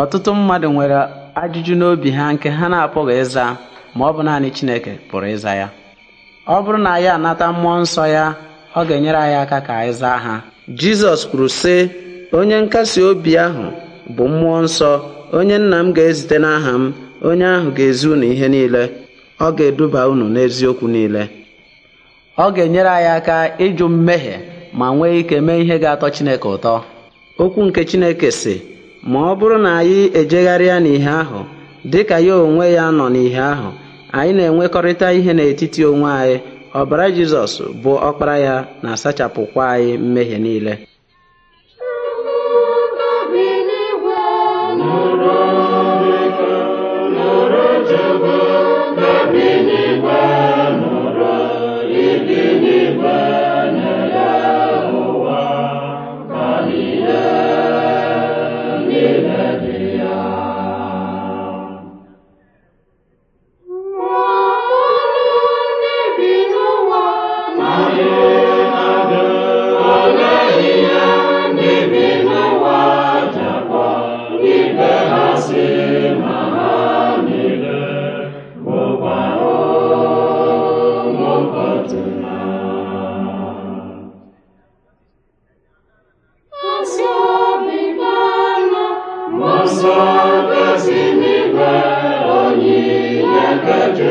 Ọtụtụ mmadụ nwere ajụjụ n'obi ha nke ha na-apụghị ịza ma ọ bụ naanị Chineke pụrụ ịza ya. Ọ bụrụ na ya anata mmụọ nsọ ya ọ ga-enyere anyị aka ka anyị zaa ha. Jizọs kwuru sị onye nkasi obi ahụ bụ mmụọ nsọ onye nna m ga-ezite n'aha m onye ahụ ga-ezi unu ihe niile ọ ga-eduba unu n'eziokwu niile ọ ga-enyere anyị aka ịjụ mmehie ma nwee ike mee ihe ga-atọ Chineke ụtọ okwu nke Chineke sị ma ọ bụrụ na anyị ejegharịa n'ihe ahụ dị ka ya onwe ya nọ n'ihe ahụ anyị na-enwekọrịta ihe n'etiti onwe anyị ọbara Jizọs bụ ọkpara ya na-asachapụkwa anyị mmehie niile nsọ gọzi n'ime onyinye nke